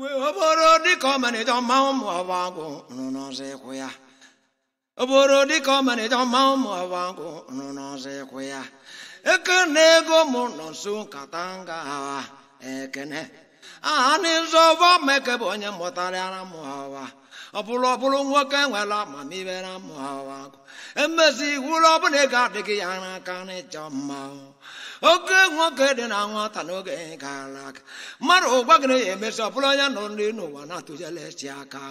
oboro dịka ọmalịcha ọma ụmụ ọbagụ nụ n'ọzọ ịkwụ ya oboro dịka ụmụ nụ n'ọzọ ịkwụ ya na ego mụ nọ nso nkata nga ekene aha n'ịzọba meke bụ onye mụtarịara mụ ọwa ọ ọbụrụ nwoke nwere amamihe na mụ ọwa emezi iwu ọbụla ego adịghị ya n'aka n'ịchọ mmanwụ oge nwoke dị na nwata n'oge gara aga mmadụ ụgwa gị na-emesi ọbụla onye nọ ndị n'ụwa na-atụjelesi aka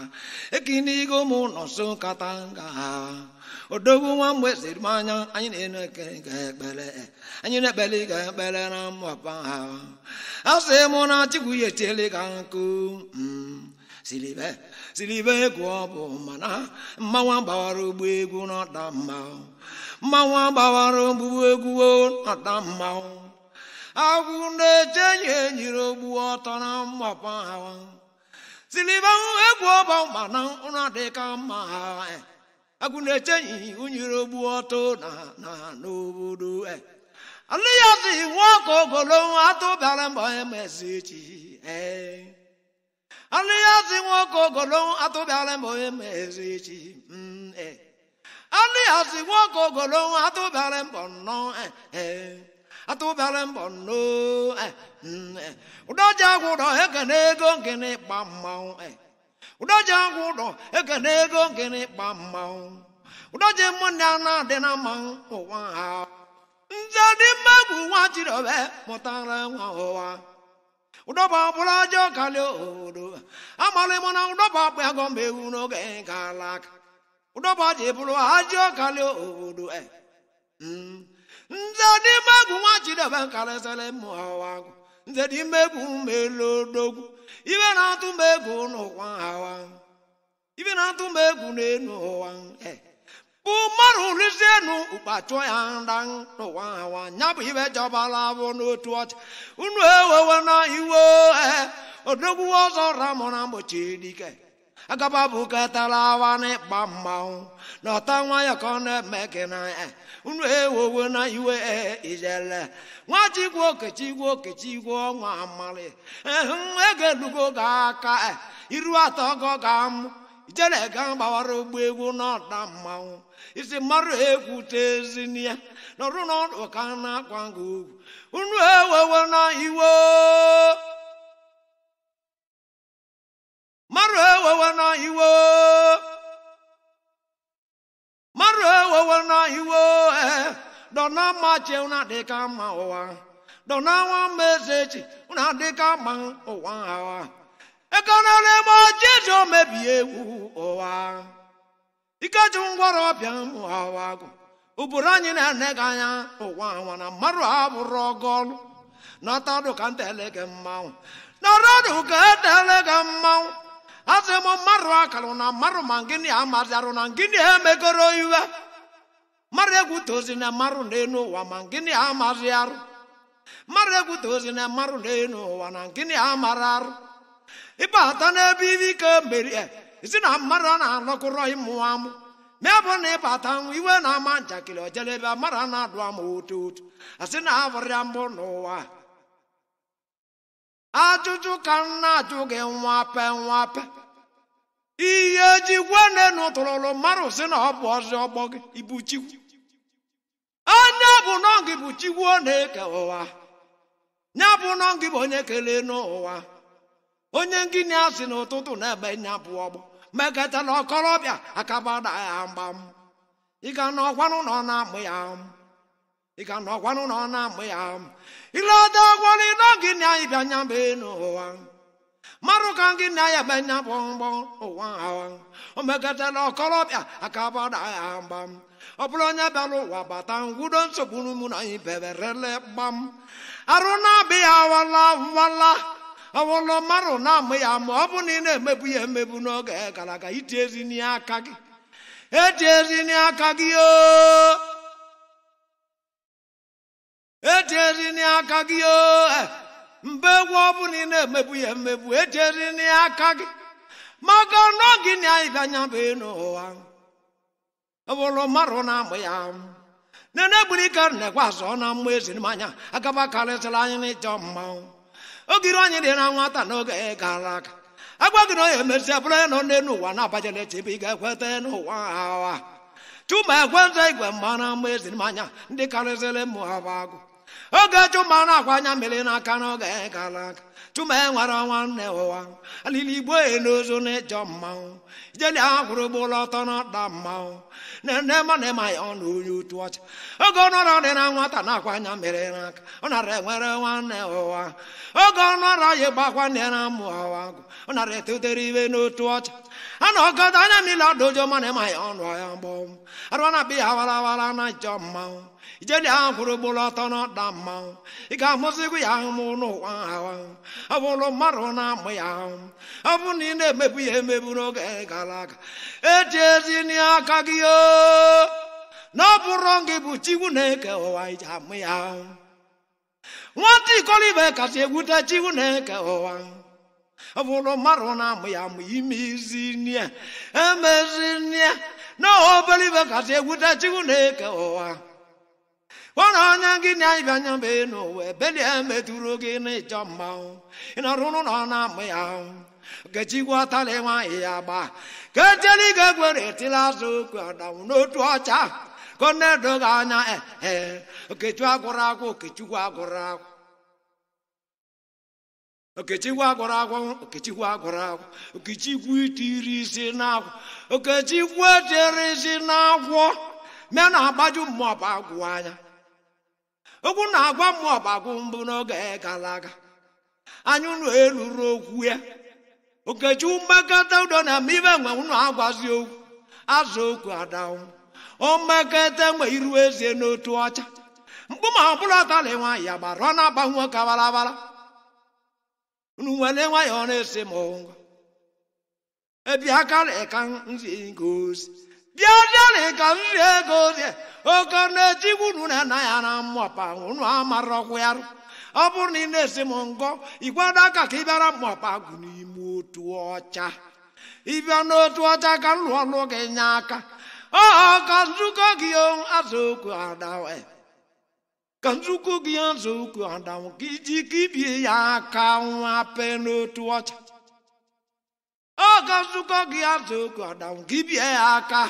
ekinigo ụmụ ụlọ nso nkata nga ha odogwu nwa mgbe siri m anya anyị na-ekpere anyị na-ekpere ga ekpere na mmụba ha a sị mụ na chukwu ya etiela ga nkụ mm, siribe siribe egwu ọ bụ mana mmanwa gbawara ụgbọ egwu n'ọda mma. mmanwụ agbawara ogbugbu egwuo nata mmanwụ agwụ na-eche enyi enyiri ogbu ọtọ na mmakpa ahụ siliba egwu ọba mana ụra dịka mma agwụ na-eche enyi ogbu ọtọ na n'obodo alị ya dị ogolo atụbịara mgbe emezi echi echi Ani asi wako golong atu balem bono eh eh atu balem bono eh eh udah jago dah ekene gong kene eh udah jago dah ekene gong kene pamau udah jemu nyana dena mang owa nzadi magu wajiro be motara wa owa ụdọba ọbụla ajọ kalị odo amalị mụ na ụdọba akpa agọ mgbe ụdọbaji bụrụ ajị ọkali obodo nze n'ime egwu nwa chidebe karịsịrị mụawagụ nze n'ime egwu melodogwu ibe na-atụ m egwu n'ụwa hawa ibe na-atụ m egwu n'elu ụwa bụ mmadụ rụzienụ ụkpachụ ya nda n'ụwa hawa ya bụ ibe jọbala abụ n'otu ọcha unu ewewe na iwe eh. odogwu ọzọ ramụ na mgbochi dike agaba bukatara awa n'ịkpa mmanwụ na ọta nwa ya na-eme eh. gị unu ewowo na iwe eh, ijele nwa chigwe okechigwe okechigwe ọnwa amali ego eh, elugo ga aka iru atọ gọ ga amụ ijele ga gbawara ụgbọ egwu n'ọda mmanwụ isi mmadụ ekwute ezinya nọrụ n'ọdụ ka na-akwa gị unu ewowo na iwe maru ewewe na iwe mmadụ ewewe na iwe dọna mma chi ụna dịka mma ụwa dọna nwa mma eze ma ụna dịka Ekana ụwa ha ego n'elema jesu mebie egwu ụwa ikeji ngwara ọbịa mụ hawa agụ ụbụrụ anyị na-ene gị anya ụwa anwa na mmadụ abụrụ ọgụ ọlụ nọtadụ ka ntelege mmanwụ nọrọdụ ka etele azemo marụ akala na marụ ma gịnị amazarụ na gịnị emegoro iwe mara egwu tozi na marụ n'elu ụwa ma gịnị amazi arụ mara egwu tozi na marụ n'elu wa na gịnị amara arụ ịbata n'ebe ibe ike merie isi na mmadụ na-anọkọrọ ịmụ amụ ma bụ na anokoro imu amu ma bu na iwe na-ama njakịrị ojelebe mara na-adụ ama otu otu asị na abụrịa mbụ n'ụwa ajụjụ ka m na-ajụ gị nwape nwape ihe eji gwanenu tụrụrụ mmadụ si na ọ bụ ọzọ ọgbọ gị ibu chikwu onye bụ nọ gị bụ chikwu ọ na-eke ụwa ya bụ nọ gị bụ onye kelee n'ụwa onye ngịnị a n'ụtụtụ na-ebe nya bụ ọgbọ meketala ọkọrọbịa akabada ya mgbam ịga n'ọkwanụ na ọ na-amụ ya ị ga-anọgwanụ nọ na amụ ya ileda gwọlịdọ gị na ịbịa anya mbe n'ụwa mmadụ ka gị na ya ebe nya bụ mgbọ ụwa o megatala ọkọlọbịa aka gbada ya mgba ọ bụrụ onye bịara ụwa bata ngwudo nsogbu n'ụmụ na anyị beberele gbam arụ na-abịa awala wala ọwụlụ mmadụ na-amụ ya ma ọ bụ na ị na-emebu ya emebu n'oge gara aga iti ezi n'aka gị eti ezi n'aka gị o ejeri n'aka gị o mba egwu ọbụla ị na-emebu ya emegbu ejeri n'aka gị maka gị na-ịbịanya bụ n'ụwa bụrụ mmadụ na-amụ ya nene gburu ike na-ekwe azụ na mma ezi anya agaba karịsịrị anyị n'ịchọ mmanwụ ogiri anyị dị na nwata n'oge gara aga gị na onye emezi bụrụ ya na n'elu ụwa na-abajela chi ị ga-ekweta n'ụwa awa chuma ekweta igwe mma na mma ezi ndị karịsịrị mụ ha bụ agụ oge chuma na-akwa anya mmiri n'aka n'oge gara aga chuma enwere nwanne ụwa alili igbo e n'ozu n'ịchọ mmanwụ jeli aha kwụrụ ụgbọụlọ ọtọ na ọda mmanwụ nene mana ịma ya ọnụ onye otu ọcha oge ọnọrọ dị na nwata na-akwa anya mmiri n'aka ọ nara enwere nwanne ụwa oge ọnọrọ ya gbakwa nne na amụ ọwa agụ ọ nara etotere iwe n'otu ọcha a na ọgọdọ anya mmiri ọdụ ụjọ mana ịma ya ọnụ ọya mgbọnwụ arụ na-abịa ya awara awara na ịchọ mmanwụ ijede ahụ kwụrụ ugboro ọtọ na ọda mmanwụ ị ga-amụzigwu ya ahụmụ n'ụwa ahụ ọ bụrụ mmadụ na-amụ ya ahụ ọ bụrụ na ị na-emebu ya emebu n'oge gara aga eji ezi n'aka gị na ọ bụrụ gị bụ chigwu na-eke ụwa iji amụ ya ahụ nwata ikolibe kasị egwute chigwu na-eke ụwa ọ bụrụ mmadụ na-amụ ya amụ ime izi nne emezi nne na obere ibe kasị egwute chigwu na-eke ụwa nwere ọnyá gị na ịbịa anya mbe n'ụwa ebelie metụrụ gị n'ịchọ mmanwụ ịnọrụ n'ụlọ na-amụ ya kechigwọtala nwaanyị ya gba ka ejeli ga egwere etila azụ okwu n'otu ọcha ka ọ na-edoghị anya ee okechu okechukwu na-agbaju agwụ okwu na-agwa m ọgbagwụ mbụ n'oge gara aga anyị unu eluru okwu ya okechukwu umekata udo na ibe nwe ụnụ agwazi okwu azụ okwu adanwụ omekete mgbe iru ezie n'otu ọcha mkpu ma ọ bụla tali nwaanyị ya gbara ọ na-agbanwe ka barabara unu nwere ya ọ na-esi m ngwa ebi aka na ka nzi bịadịanị ka nri ego dị oke na-etigwu na nna ya na mmụọpa unu amarọkwụ ya ọ bụrụ na ị na-esi m ngọ ikwado aka ka ị bịara mmụọpa gụ n'ime otu ọcha ịbịa n'otu ọcha ka m lụọ gị nye aka ọ ka nzukọ gị azụkwu adawe ka nzukọ gị azụkwu adawe ka iji ka ibie ya aka nwa pe n'otu ọcha oge nzukọ gị azụ oge gị bie ya aka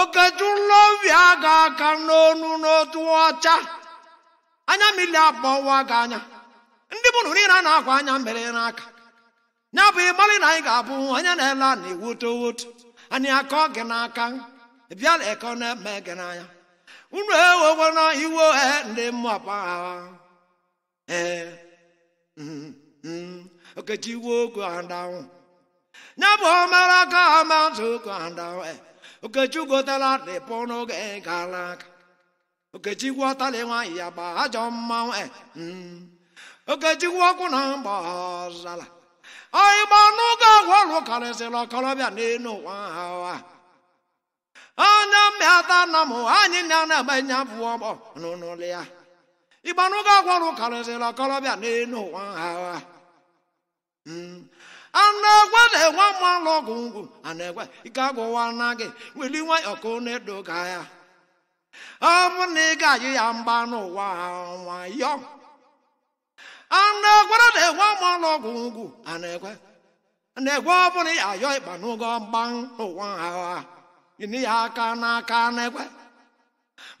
okechula obi aga aka n'onu n'otu ọcha anya mmiri ụwa gị anya ndị mụrụ niile a na-akwa anya mere n'aka ya bụ ịgbalị na anyị ga-abụ onye na-ele na-ewoto woto anyị akọ gị n'aka bịala eko na-eme gị n'anya unu ewekwana iwe ndị mmụọ pa ee mm, mm. ka eh. Okechi Iwu go down. Okechukwu Malaka Mountain go down. Okechi Gotala de Pono Galak. Okechi Watalewa Yaba Jomma. Okechi Wakuna Bazala. Anyị gba n'oge agwọlụ karịsịrị ọkọrọbịa n'elu ụwa hawa. Anya ah. mmịata na m anyị na na-eme nya bụ ọgbọ n'ụlọ ya. Ịgba n'oge agwọlụ karịsịrị ọkọrọbịa n'elu ụwa hawa. Mm. a na-egwe na-enwe mmanụ ọgwụ ngwụ a na-egwe ike agwụwa na gị weli nwayọọ ka ọ na-edo ya ọ bụ na ị ga-ayụ ya mgba n'ụwa nwayọọ a na-egwere na-enwe mmanụ ọgwụ ngwụ a na-egwe na-egwe ọ bụrụ ya ayọ ịkpa n'ụgọ mgba n'ụwa agha ịnị ya aka n'aka na-egwe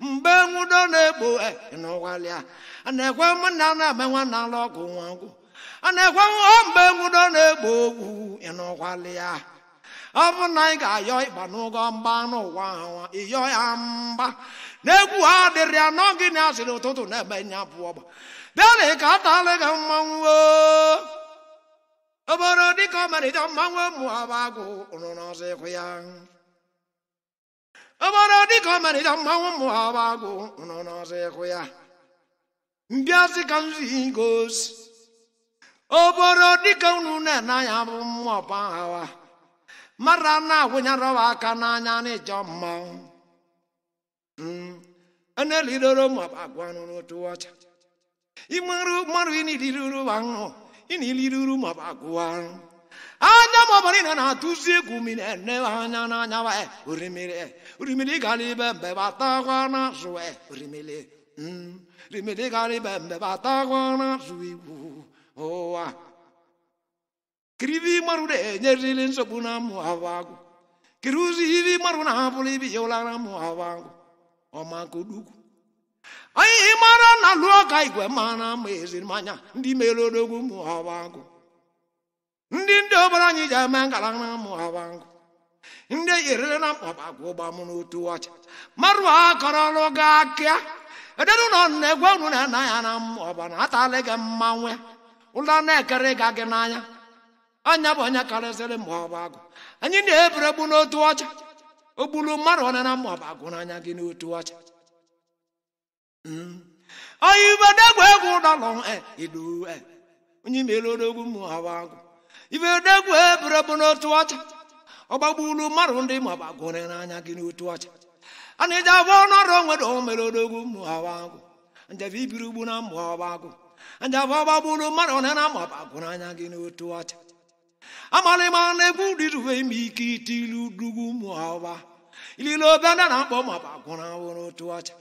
mgbe nwudo na-egbo e, n'ụwalịa a na-egwe mụ na na-eme nwa na-alụ ọgwụ nwa ngwụ a na-ekwe mgbe nwudo na-egbo ogwu ị nọkwala ya ọ bụ na ị ga-ayọ ịgba n'ụgọ mgba n'ụwa ahụ ịyọ ya mba. na-egwu ha dịrị ya nọ gị na asịrị ụtụtụ na-eme nya bụ ọgba bịana ka atala gị mmanwụ obodo dịka ọmarịcha mmanwụ ụmụ abagụ ụrụ n'ọzọ ịkwụ ya obodo dịka ọmarịcha mmanwụ ụmụ abagụ ụrụ n'ọzọ ịkwụ ya sị ka nzu gosi oboro dịka unu na-ene anya bụ mmụọ aghawa mara na awụnyerọwa aka n'anya n'ịjọ mmanwụ elidoro maọbụ agwa n'otu ọcha ịmụrụ mmadụ ịniliruru ahụ ịniliruru maọbụ agwa anya maọbụrụ ị na-atụzi egwu mmiri ene anya n'anya orimiri orimiri gara ibe mbe batakwa n'azụ orimiri orimiri gara ibe mbe batakwa n'azụ igwu ụwa kiridi marụ de nyerili nsogbu na mụ avangu kiri ụzọ iri marụ na abụrụ ibi ya ụlara mụ avangu ọmakodugwu anyị mara na lụọ ọka igwe mara ma manya ndị mere odogwu mụ avangu ndị ndị obere anyị ji eme na mụ avangu ndị yerere na mkpabagwa ụgbamụ n'otu ọcha marụ akọrọlụ gị akịa edenụ nọ na egwe unu na-anaghị na mmụọ ọbana atalị gị mmanwụ Ụlọ na-ekere ga gị n'anya anya bụ anya karịsịrị ma ọ bụ agụ anyị na-eburu n'otu ọcha o mmadụ ọ na ọ bụ agụ n'anya gị n'otu ọcha hmm. eh, eh. onye ibedegwu egwu ọ bụ agụ ibedegwu eburu gị n'otu ọcha ọ mmadụ ndị agụ n'anya gị n'otu ọcha a na-eji agwa ọnụ onwere o odogwu ma ọ bụ agụ ibiri ugbu na ọ bụ anjavabagburu mmadụ na na-amapagụrụ anya gị n'otu ọcha amalịma na-egwu dịrube ime ike ite ilu dugwu ụmụ ahụba ilile obe ndị na-akpọ mapagụrụ ahụ n'otu ọcha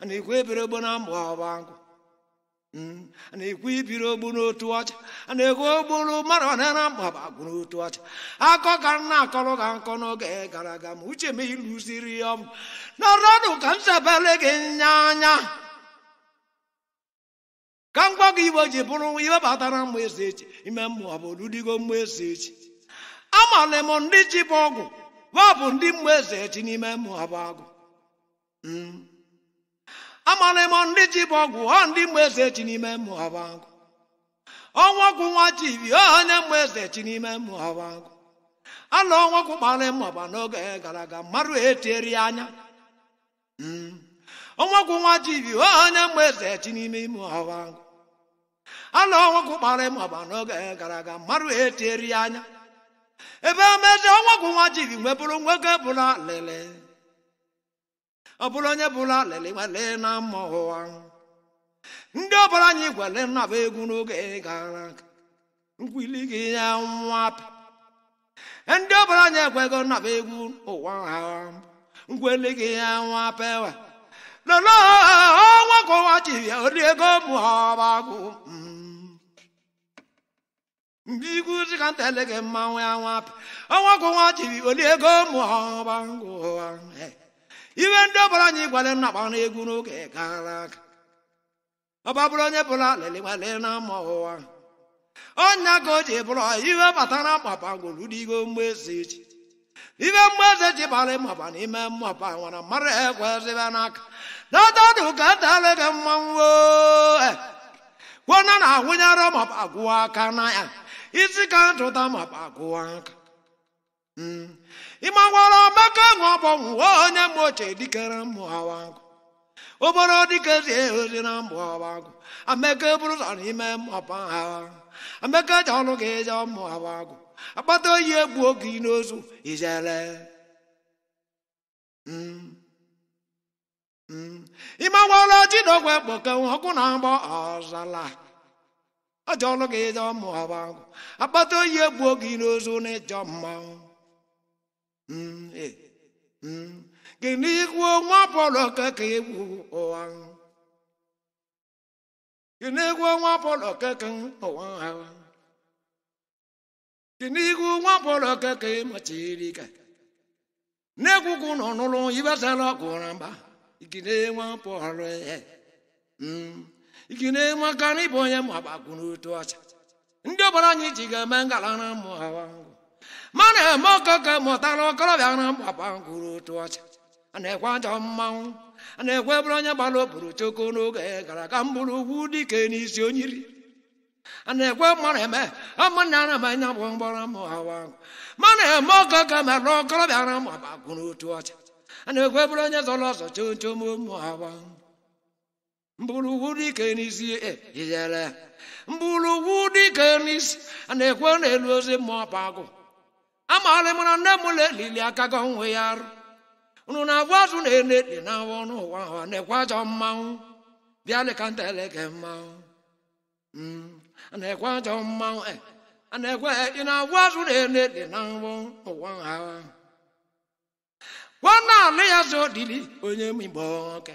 ana ekwu ebere ogbo na mbụ ahụba nkụ ana ekwu ibiri ogbu n'otu ọcha ana ekwu ogburu mmadụ na na mkpabagụ otu ọcha akọ ka m na-akọrọ ka nkọ n'oge gara aga ma uche m iluziri ya ọmụ nọrọnụ ka m sebere gị nya anya ka ngwa gị iwe ji bụrụ iwe batara mma eze echi ime mmụọ bụ oludigo mma eze echi amala m ndị ji bụ ọgwụ wa bụ ndị mma eze echi n'ime mmụọ bụ agụ hmm. amala m ndị ji bụ ọgwụ ọ ndị mma eze echi n'ime mmụọ bụ agụ ọnwa ọgwụ nwa ji ibi ọ onye mma eze echi n'ime mmụọ bụ agụ ala ọnwa ọgwụ kpara mma ọba n'oge gara aga mmadụ etieri anya ọnwa hmm. ọgwụ nwa ji ibi ọ onye mma eze echi n'ime mmụọ bụ agụ anọ ọnwagwụ kpara ịma agba n'oge gara aga mmadụ etieri ya anya ebe omezi ọnwagwụ nwa jiri nwee bụrụ nwoke bụla lele ọ bụrụ onye bụla lele nwele na mma ụwa ndị ọbụla anyị gwele nnaba egwu n'oge gara aga nkwili gị ya nwapị ndị ọbụla anyị ekwego nnaba egwu ụwa ha nkweli gị ya nwapewa lolo ọnwa ka ụwa chiri ya ori ego mụọbagụ mbiguzi ka ntelege mmanwụ anwapị ọnwa gwụnwa chiri olie ego mụọbangụa iwe ndị ọbụla anyị gwara nnakpa na egwu n'oge gara aga ọba bụrụ onye bụla lelewale na mma ụwa ọnya ka o ji bụrụ iwe batara mkpapangwolu digo mgbezi ji ibe mgbeze ji bara ịmaba n'ime mmaba nwara mara ekwe ezebe n'aka na ọdọdụ ka ntelege mmanwụ eh, kwona na na awụnyere maba gwụọ aka na ya ichikantụta ma kpakuo aka ịmakwara hmm. ọmaka ṅụọbọ nwa onye mma ochie dikere mmụ awagụ obere dikezi ozi na mbụ awagụ ameke eburu sọ n'ime mmapa ha ameke ji ọnụ gị ịje mmụ awagụ akpata oyi egbu oge n'ozu ijele hmm. hmm. ji ịmakwara chidogwe kpoke ọkụ na mgbọ ọzala ọjọlụ gị ịjọ mụọba akpata oyi egbuo gị n'ozu na ịjọ gị n'ikwu nwa pọlọ ka ka egbu ụwa gị n'ikwu nwa pọlọ ka ka ụwa ha gị n'ikwu nwa pọlọ ka ka ịmachiri ka ibesala ọgụ na mba gị ike na-eme aka na ịbụ onye ma gbakwuru otu ọcha ndị ọbara anyị ji ga-eme ngala na mụ ma na-eme ọkọkọ mụtara ọkọrọbịa na mgbakwuru otu ọcha a na-ekwe ajọ mmanwụ a na-ekwe ebere onye gbara oburu choko n'oge gara aga mbụrụ ugwu dike n'isi onyiri a na-ekwe mmanụ eme ụmụnne a na-emenya bụ mgbara mụ hawa ma na-eme ọkọkọ mere ọkọrọbịa na mụ mgbakwuru otu ọcha a na-ekwe ebere onye zọrọ ọzọ choo choo mụ hawa mgbụrụwudikenisijijere eh, a na-ekwe n'elu ozi mmụọ pa agụ amarị na nne m lelili aka gị onwe ya arụ unu na-abụ azụ na-ele dị na awa ọnụ ụwa na-ekwe ajọ mmanwụ bịa leka nteleke mmanwụ mm, eh, na-ekwe ajọ mmanwụ na-ekwe ị na-abụ azụ na-ele dị na awa ụwa ahụ na ala ya zo dili onye m igbo nwoke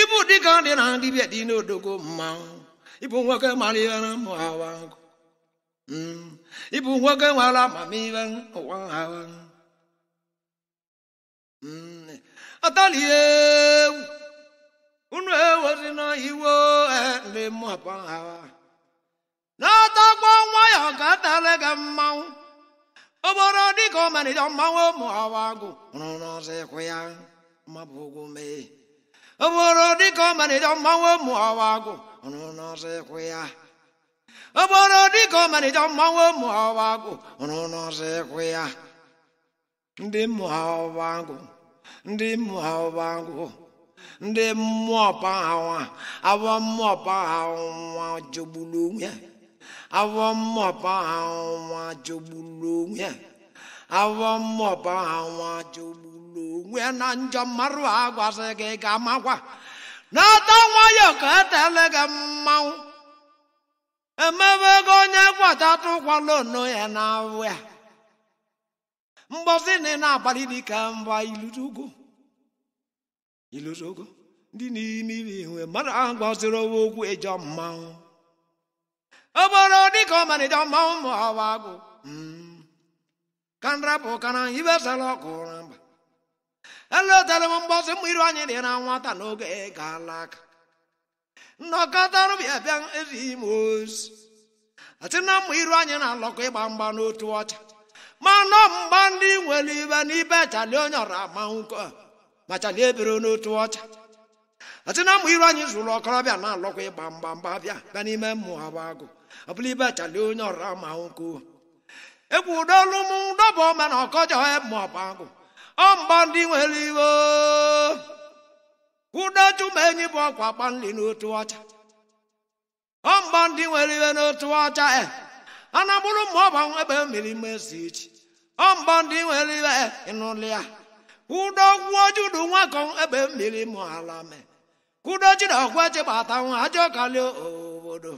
ịbụ dịka ndị na ndị bịa dị n'odogo mmanwụ ịbụ nwoke maliere mụ awa nkụ ịbụ hmm. nwoke nwere amamihe ụwa awa hmm. atalihe unu ewezi na iwe e ndị ha awa n'atakwa nwa ya ka atara gị mmanwụ obodo dịka ọmarịcha mmanwụ ụmụ awa agụ rụrụ ọzọ ịkwụ ya mabụ ụgwụ mee ọ bụrụ dịka ọ malite mmanwụ ụmụ ọwa agụ ya ọ bụrụ dịka ọ malite mmanwụ ụmụ ọwa agụ ịkwụ ya ndị mmụọ ọwa agụ ndị mmụọ ọwa agụ ndị mmụọ pahawa awọ mmụọ pahawa jogburu onwe onwe onwe na njọ mmarụ a gị ga amakwa n'ata nwayọ ka etele gị mmanwụ emebe ego onye kwatatụkwalụno ya na awụ ya mgbozi na ị na-agbalị mba ndị n'ime mmadụ ahụ gbaziri owe okwu ejọ mmanwụ oboro dịka ọmarịja mmanwụ ma ọ bụ agụ hmm. ka nrapụ kana ibesala ọkụ mba elodere m mgbazi mma iru anyị dị na nwata n'oge gaala Nnọkọta nnọkọtarụbịa bịa ezighị m ozi ati na mma iru anyị na-alọkọ ịgba mgba n'otu ọcha mana mgba ndị nwere ibe n'ibe chalie onye ọra amanwụko ma chalie ebere n'otu ọcha ati na mma iru anyị zụrụ ọkọrọbịa na-alọkọ ịgba mgba mgba bịa bịa n'ime mmụọ abụ ọ bụla ibe chalie onye ọra amanwụko egwu ụdolu m dọba ọma na ọkọjọ mmụọ bụ agụ ọmbandị nwere iwe kwụdo chumenyi bụ ọkwa gbanli n'otu ọcha ọmbandị nwere iwe n'otu ọcha e eh. anabụrụ ma ọba ebe mmiri mesi ichi ọmbandị nwere iwe ịnụlị eh, ya kwụdo gwuo judu nwakọ ebe mmiri mụ ala me kwụdo chiri ọgwa chịbata nwa ajọ kalị obodo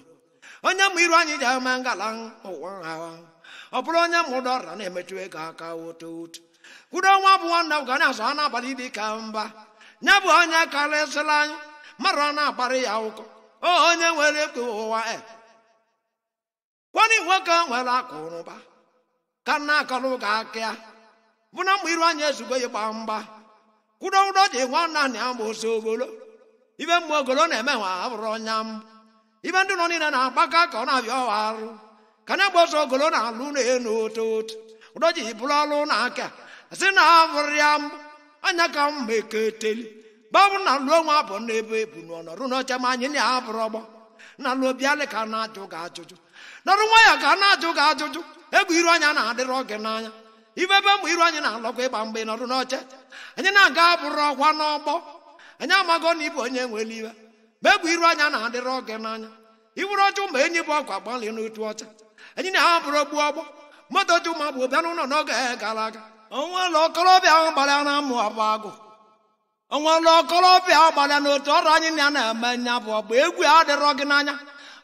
onye mụ iru anyị ji ama ngala ụwa ha ọ bụrụ onye mụdọra na-emetụ ego aka otu otu kwuru ọnwa abụọ nna ga na-azụ ha n'abalị dị ka mba nya bụ onye karịsịrị anyị mmadụ a na-akparị ya ụkọ onye nwere ekpe ụwa e. kwani nwoke nwere akụrụba ka nna akọrọ ụka akịa bụ na mgbe iru anya ezugbo ya gbaa mgba kwuru ụdọ ji nwanna na ya mgbosi ogolo ibe mgbe ogolo na-eme nwa abụrụ ọnya ibe ndị nọ niile na-agbaka ka ọ na-abịa ọwa arụ ka na-egbosi ogolo na alụ na-enu otu otu ụdọ ji bụrụ ọrụ na aka zinavụriam anya ka m eketeli gbabụ na lụọ nwa abụ n'ebe ebu n'ọnọrụ n'ọcha ma anyị na-abụrụ ọgbọ na lụọ bịalị ka na-ajụ gị ajụjụ nọrụ nwa ya ka na-ajụ gị ajụjụ egwu iru anya na adịrị gị n'anya ibebe mgbe iru anyị na-alọkwa ịgba mgbe nọrụ n'ọcha anyị na-aga abụrụ ọkwa n'ọgbọ anyị amago na ịbụ onye nwere iwe ma egwu iru anya na adịrị gị n'anya ibụrụ ọjụ ma enyi bụ ọkwa gbalị n'otu ọcha anyị na-abụrụ ogbu ọgbọ moto juma bụ bịa n'ụlọ n'oge gara aga onwela okorobịa ahụ gbalịa na amụ abụ agụ onwela okorobịa ahụ gbalịa na otu ọrụ anyị na na-eme nya bụ ọgba egwu adịrọ gị n'anya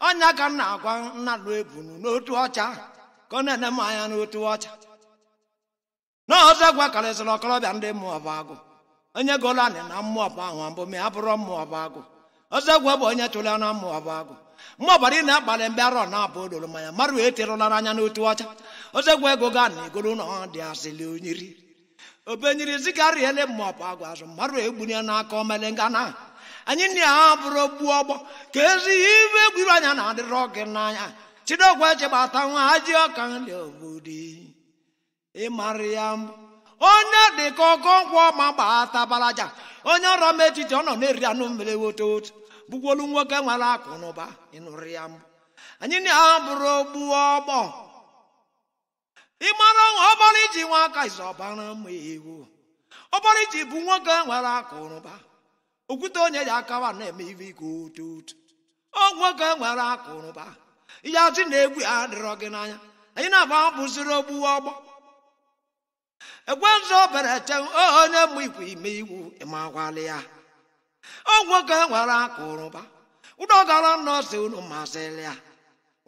ọnya ka m na-agwa nna lụ ebunu n'otu ọcha ka ọ na-ene m anya n'otu ọcha na ọzọ gwakarịsịrị okorobịa ndị mmụọ bụ agụ onye gola anyị na mmụọ bụ ahụ mbụ ma ya bụrụ mmụọ bụ agụ ọzọ gwa bụ onye chụla na mmụọ bụ agụ Mmụọ ọbara ị na-akpalị mgbe arọ na-abụ ololo manya marụ eterụlara anya n'otu ọcha ozegwu ego ga na egoro na ọ dị asịlị onyiri obenyiri zikarịele maọbụ agwa azụ mmadụ egbunye n'aka omelenga ngana. anyị nna ya bụrụ ọgbọ ka ezi ihe ibe egwuru anya na adịrị gị n'anya chidogwu echegbata nwa ajị ọka nri obodo ịmara ya mbụ onye dị ka ọgọnkwọ ma gbata tabalaja onye ọrụ m etiti ọ nọ na-eri anụ mmiri woto otu bụkwolu nwoke nwere akụ na ụba ịnụrụ ya mbụ anyị na-abụrụ ogbu ọgbọ ị mara ọnwa ọbara iji nwa aka izu ọbara mma ewu ọbara iji bụ nwoke nwere akụrụba okwute onye ya akawa na-eme ibe ike otu otu ọ nwoke nwere akụrụba ihe ajụ na egwu ya adịrọ gị n'anya anyị na-agba bụziri ogbu ọgbọ ekwenzu obere te onye mụ ikwu ime iwu ịmakwali ya ọ nwoke nwere akụrụba ụdọgara nọọsụ unu masịrị ya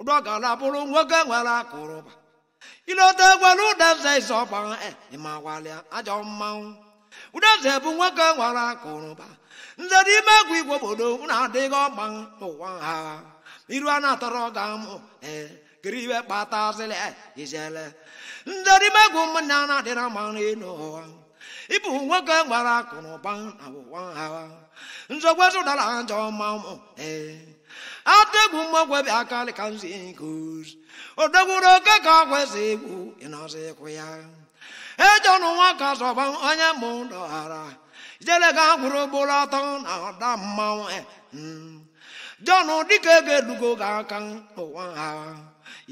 ụdọgara bụrụ nwoke nwere akụrụba ilota gwara ụdaze zọgbara ịmawalịa ajọ mmanwụ ụdaze bụ nwoke nwara akụrụba nze n'ime egwu igwe obodo na-adịghị ọgba n'ụwa ha iru a na-atọrọ ga mụ kiri iwe kpata azịlị izele nze n'ime egwu ụmụnna na-adịra mma n'elu ụwa ịbụ nwoke nwara akụrụba na ụwa ha nzọgwezu dara ajọ mmanwụ ee adegwu mmagwebi akali ka nsi nkozi odegwuru oke ka kwesị egwu ịnọsị ịkwụ ya ejenụ nwa ka sọgba onye mụ dọghara jere ga gwụrụ gboro atọ na ọda mmanwụ jọn dịka ego edugo gị aka n'ụwa ha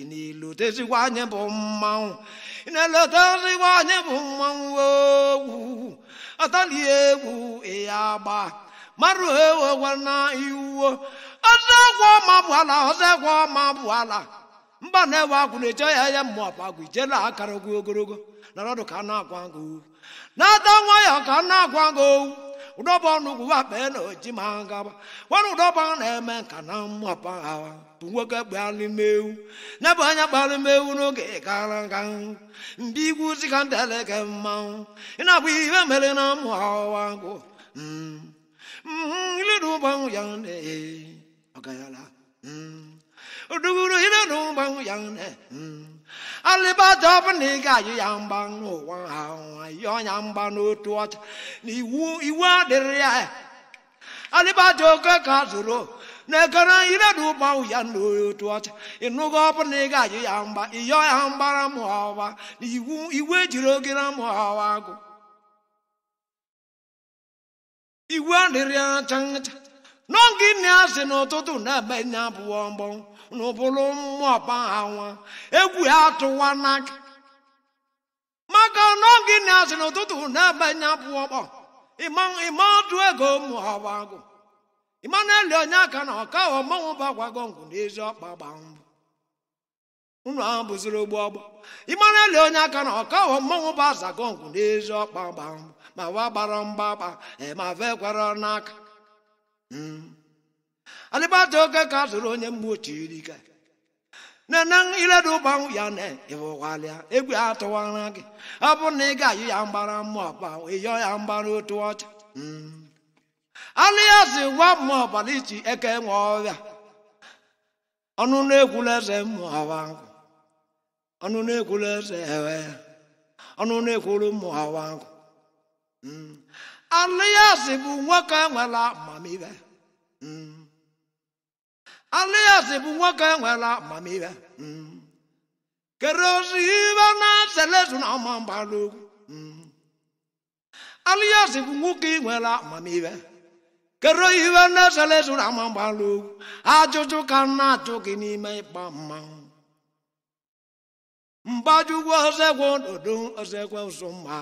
ị na-elotezikwa anyị bụ mmanwụ ị na-elotezikwa anyị bụ mmanwụ owu. ọtala egwu ya agba mara ewewena iwuwo ọzọgwọ ọma bụ ala ọzọgwọ ọma bụ ala mba na-ewe agwụ na-eche ya ya mmụ ọpa agwụ ijela akara ogwu ogologo na ọdụ ka na-agwa na-ada nwayọ ka na-agwa owu ụdọba ọnụgwụ wakpee na oji ma gaba nwere ụdọba na-eme nka na mmụọpa ha bụ nwoke Na-ebu anya ewu n'oge gara aga mbe igwu zika ndeleke mmanwụ ị na-abụ ihe mere na mmụọ ọwa gụ bang yang ne agayala duguru hina no bang yang ne aliba dab ne ga yang bang no wan ha yo tuat ni iwa der ya ka ka zuro ne kana ina tuat inu go pa ne ga yang ba yo yang iwe jiro gira igwe adịrị acha ncha n'oge nne ya asị n'ụtụtụ na-abanye abụọ mgbọnwụ na ụbụrụ mmụọ pahawa egwu ya atụwa n'aka maka n'oge nne ya asị n'ụtụtụ na-abanye abụọ mkpọ ịma ọdụ ego agụ ịma na-eli onye aka na ọka ọmanwụ bagwago ngwụ n'ezi ọkpa gba mbụ unu ahụ bụziri ogbu ọgba ịmara eli onye aka na ọka hụ mmanwụ bụ azagọngwụ n'ezi ọkpa gba ma wa gbara mgbaba e ma vekwara n'aka hmm. adịbata oke ka zụrụ onye mgbu chirika nene iledu ụgbanwụ ya na ịwụwalịa egwu ya atụwara gị ọ bụ na ị ga-ayụ ya mgbara mmụọ gbanwe yọọ ya mgbara otu ọcha hmm. aliazi nwa mmụọ ọbara iji eke nwe ọrịa ọnụ na-egwula eze mmụọ ahụ ọnụnụ ekwulu eze ewe ọnụnụ ekwulu ụmụ awa anụ ya si bụ nwoke nwere amamihe anụ ya si bụ nwoke nwere amamihe hmm. kere ozi ibe na selezu hmm. na ọma mgbalụ anụ ya si bụ nwoke nwere amamihe kere iwe na selezu na ọma mgbalụ ajụjụ ka na-ajụ gị n'ime ịgba mmanwụ mgbajugwu ozegwu ododo ozegwu ụzọmma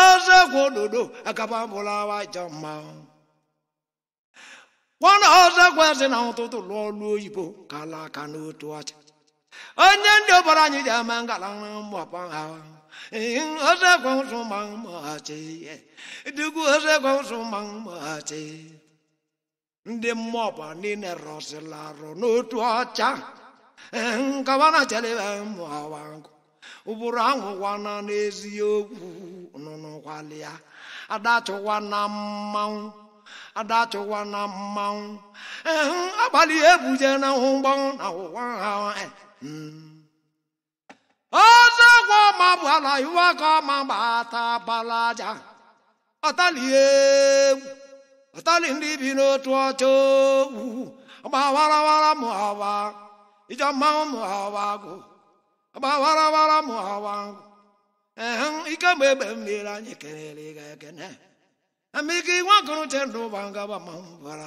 ozegwu ododo agababụlawa jamma nwana ozegwu eze na ụtụtụ lụọ ọlụ oyibo ka ala aka n'otu ọcha onye ndị ọbara anyị ji ama ngala mgbapa ha ozegwu ụzọmma mmachi dugwu ozegwu ụzọmma mmachi ndị mmụọ ọba niile rọsịlarụ n'otu ọcha nkawana chalebe mmụọ wangu ụbụrụ ahụ gwana n'eziokwu nụnụ kwalịa adachụwa eh, na mmanwụ adachụwa na eh. hmm. mmanwụ agbalị ebuje na hụ na ụwa ha ọzọgwọ ma bụ ala iwe ka ọma gbata bala aja ọtalie egwu ọtali ndị bi n'otu ọcha owu ogwu gbawarawara ma ọwa ija mmanwụ mụ hawa agụ agbawara mụ hawa ngụ ee ike mgbe egbe mmiri anyị kelere ga ekene amike iwe gụrụ che ndụ ụba ngaba mmanwụ bara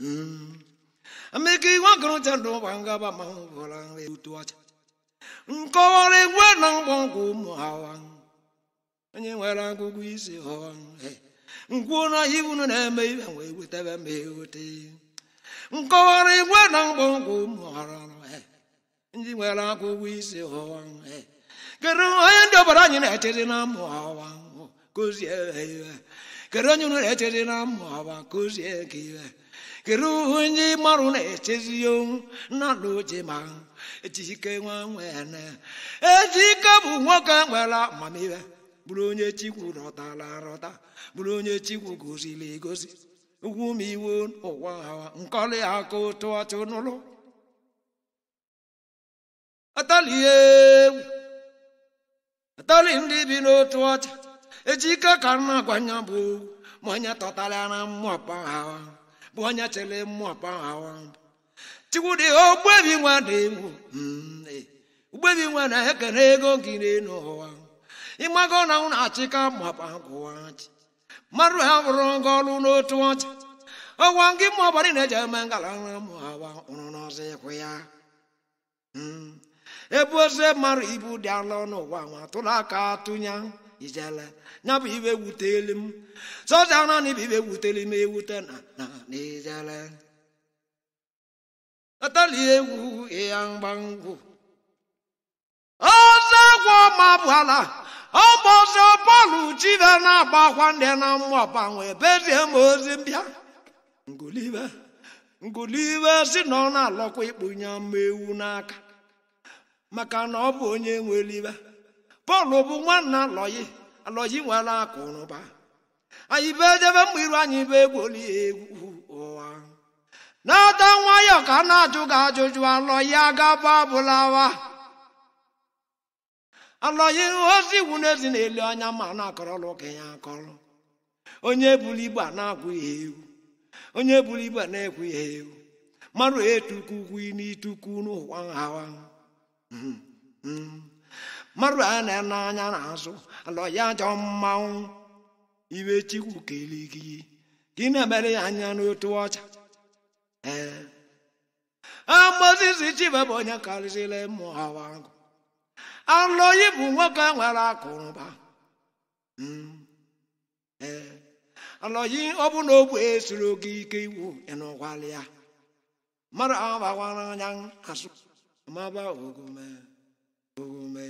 hmm. ndụ ụba ngaba mmanwụ ọcha nkọwara egwe na ụmụ hawa onye nwere agụgụ isi ngwụ na na-eme ibe wee wetara m egote nkọwara igwe na mkpọnkwụ mụghara e. ndị nwere akwụkwọ isi ụwa e. kedu onye ndị ọbara anyị na-echere na mmụ ọwa kụzie iwe kedu onye nwere na na mmụ ọwa kụzie ka iwe kedu onye marụ na-echezi onwu nna ochie ma ejike nwa nwene ejike bụ nwoke nwere amamihe bụrụ onye chikwu rọtara rọta bụrụ onye chikwu goziri egozi ugumiwon owahawa nkole ako toa chonolo atalie atali eh. ndị bi n'otu ọcha ejike ka nna gwanya bụ ma onye tọtara na mmụọpa hawa bụ onye chere mmụọpa Chukwu chikwudi ogbebi nwa na ewu ugbebi nwa na ekene ego gị n'elu ụwa ịmago na na-achịka mmụọpa gwụwa chi mmadụ ha rụrụ nga ọrụ n'otu ọcha ọgwa gị mụ ọbara ị na-eji eme ngala nra mụ awa ụrụ n'ọzọ ịkwụ ya hmm. ebe oze mmadụ ibu dị ala n'ụwa ụwa nwa tụrụ aka tụnya ijele ya bụ ibe wuteli m soja naanị bụ ibe wuteli m ewute na na ijele atala egwu ya e mgbangwu ọzọ egwu ọma bụ ala ọbọzọ bọọlụ chibe na-agba akwa ndị na mmụọpa wee bezie m ozi mbịa ngulibe ngulibe si na ọ na-alọkwa ịkpụnye mma ewu n'aka maka na ọ bụ onye nwelibe pọl bụ nwanna alọyi alọyi nwere akụnụba anyị be debe mgbe iru anyị be egwoli egwu ụwa na-ada nwayọọ ka a na-ajụ gị ajụjụ alọyi agaba abụlawa ala ya ozi iwu n'ezi na-eli anya ma na-akọrọla ụka ya akọrọ onye buru igbe na-akwụ ihe ewu onye buru igbe na-ekwu ihe ewu marụ etuku ukwu n'ituku n'ụwa nhawa hmm, hmm. marụ a na n'anya n'azụ ala ya ajọ mmanwụ iwe chikwu kere gị ị na-emere ya anya n'otu ọcha ee amozisi chiba bụ onye karịsịrị ụmụ hawa ahụ alọghị bụ nwoke nwere akụrụba hmm. eh. alọghị ọ bụ na ogbe esiri oge ike iwu ịnụgwalịa ya mmadụ ahụ bakwara anya asụ maba ogome ogome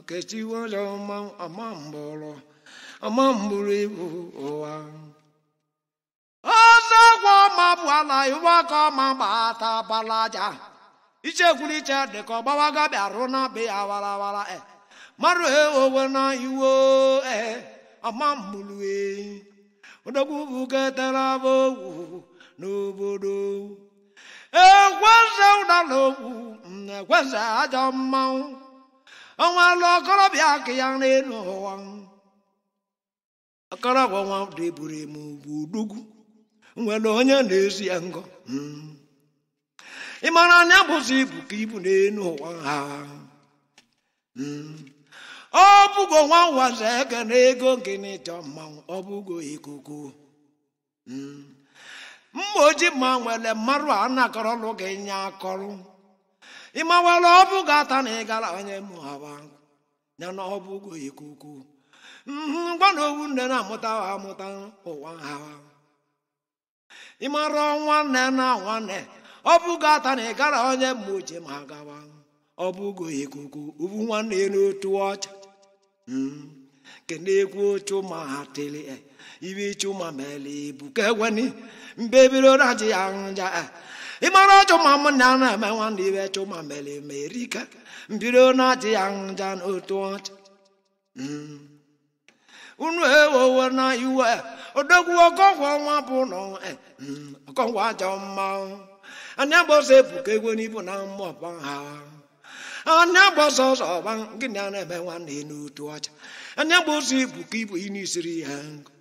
okechi ọjọ ọma mgbọrọ ọma ọjọ ibu ụwa ọzọ gwa ọma bụ ala iwe aka ọma gbata balaja ichekwuru iche dị ka ọgbawaga bịarụ na be ya warawara e marụ he owe na iwo ee ọmamgbulue odogwu bugetara bụ ogwu n'obodo ekweze ụdala ekweze ajọ mmanwụ ọnwalụ ọkọrọbịa aka ya n'elu ụwa ọkọrọbịa nwa deburu m ugwu udugwu nwere onye na-esi ya ngọ hmm. ị anya bụzi ibu ka ibu n'elu ụwa ha ọ bụgo nwa nwaze ege na ego gịnị jọ mmanwụ ọ bụgo ikuku mma oji ma nwere mmarụ a nakọrọlụ gị nye akọrụ ị mawara ọ bụgo ata na ịgara onye mụhaba ya na ọ bụgo ikuku ngwa na owu nne na-amụta amụta ụwa ha ịmara nwanne na nwanne ọ bụgo ata na ịgara onye mma oche ma gawa ọ bụgo ikuku ubu nwanne n'otu ọcha hmm. kene egwu chuma tili eh. iwe chuma mele ibu ka eweni mbebiro raji anja eh. ịmara chuma m na na eme hmm. na iwe chuma eh. mele ma erika mbiro naji anja n'otu ọcha unu ewowo na iwe odogwu ọkọgwọ nwa bụ nọ hmm. ọkọgwụ ajọ mmanwụ anya gba ọsọ ebuka egwu n'ibu na mmụọ ha anya gba ọsọ ọsọ ọgba gịnị a na-eme nwanne n'otu ọcha anya gba ọsọ ebuka ibu ị na-esiri ha nkụ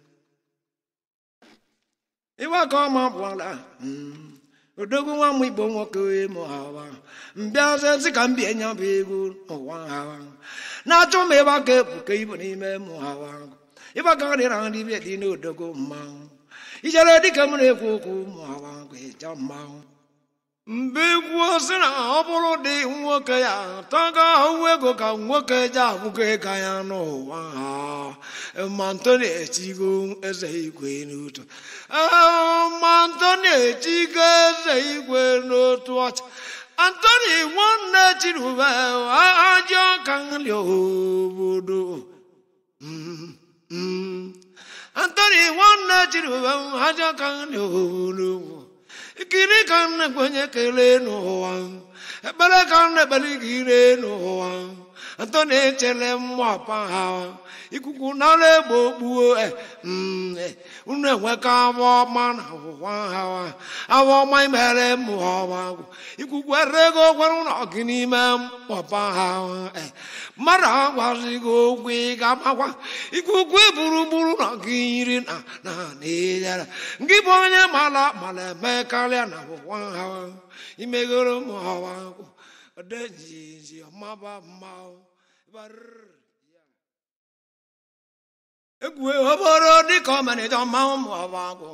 iwe ka ọma bụ bụla hmm, odogwu nwa m igbo nwoke ịmụ hawa mbịazezi ka m bie nya bụ egwu n'ụwa hawa na-achọ m ịba ka ebuka ibu n'ime mụ hawa ịba ka dị na nri dị n'odogwu mmanwụ ijere dịka m na-ekwu okwu ụmụ hawa ịja mmanwụ mgbe egwu sị na ọ bụrụ dị nwoke ya tọga ahụhụ ego ka nwoke ji ahụgo ego ya n'ụwa ha mantoni Echigo eze igwe n'otu mantoni Echigo eze igwe n'otu ọcha antoni nwanne chinube ajị ọka nri obodo mm, mm. antoni nwanne chinube ajị ọka nri obodo ekele ka m na-ekpe onye kelee n'ụwa ekpere ka m na-ekpere gị ire n'ụwa atọ na-echere mmụọ apa ha ikuku nara egbe okpuo unu enweka awa ọma na ụwa awa ọma imere mụọwa ikuku ego gwara ụlọ gị n'ime mkpọpa ha mmadụ eh. agwazi gị okwu ị ga-agbakwa ikuku eburugburu na gị yiri na na na gị bụ onye mara mara eme karịa na ụwa ha imegoro mụọwa ọdejiji ọmaba mmanwụ egwu ọbọrọ dịka ọmanịja mmanwụ ma ọ bụ agụ